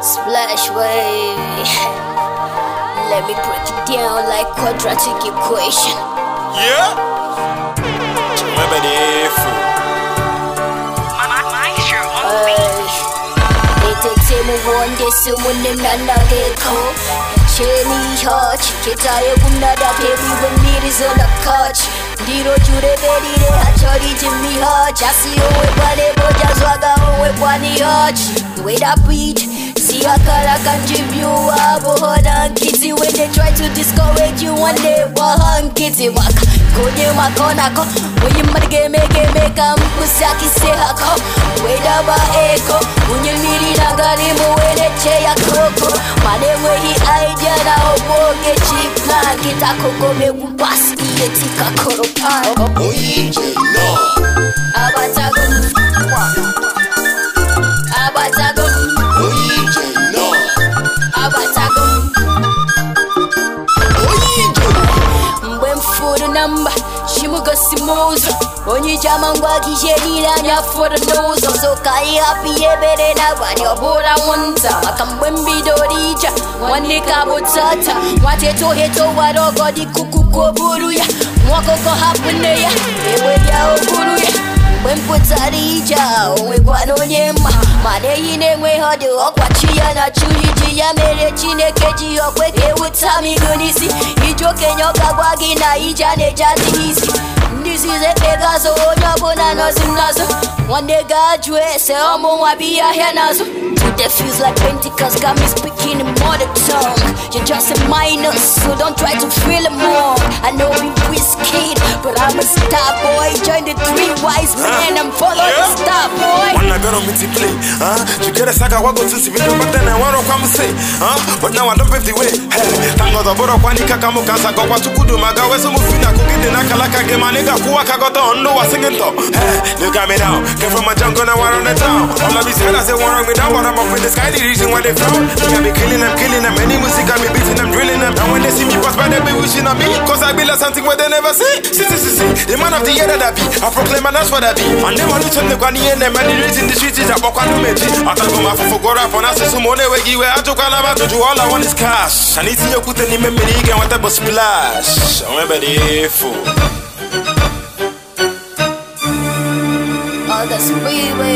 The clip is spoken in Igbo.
Splash wave. Let me break it down like quadratic equation. Yeah. Entertainment one day someone another call. Jenny Hodge, get tired of another baby when it is on the couch. Ndiro chure beri re hachori Jimmy Hodge. I see you with one day, but just wagga one Hodge. The way beat. See a color can give you a board and kitty When they try to discourage you and they want kitty walk Konye makonako Oye marge mege meka mkusaki sehako Weda ba eko Unye niri nagarimu wele che ya koko Manewe hi idea na omoge chipna Kita koko me upas iye tika koropano Oye no chimugasimuzo onye iji ama ngwa gị ihe niile anya fọrọ n'ụzọ so ka anyị hapụ ihe ebere na abalị ọ bụrụ anwụnta maka mgbe mbido dị ije nwanne ka bụ tata nwata eto eto wara ọgọ dị kukuku buru ya nwa ọkụkọ hapụ nne ya ewe ya ya mgbe mpụtara pụtara ije a onye mma mana ehi na-enweghị ọdị ọkwachi ya na churi ji ya mere chineke ji ya okwe ka ewuta m n'isi ndị okenye ọka gwa gị na ije a na-eje adịghị isi ndị izizi ekpego azụ onye ọbụla nọzi n'azụ nwanne ga-ajụ ese ọmụ nwa bụ n'azụ Today feels like Pentecost got me speaking in mother tongue You're just a minor, so don't try to feel it more I know we risky, but I'm a star boy Join the three wise men and follow yeah. the star boy Wanna go to meet the clay, huh? You get a saga, what to see me, but then I want but now i nwa pay the way ka ngọzọ bụrụ ọkwa kaka ka mụ ka nsa gọkwa chukwudu ma gawa eso m fi na akụ gị dị n'akala gị ị ga ka gọta ọnụ wa singin now came from jungle now on the town all of me down I'm in the sky the reason why they frown on me. Cause I be like something where they never see. See, see, see, see. The man of the year that I be. I proclaim and that's what I be. And they want to the guani and the the streets is a meji. I talk about my for God up on us. So money we give I about to all I want is cash. and what splash. fool. All the sweet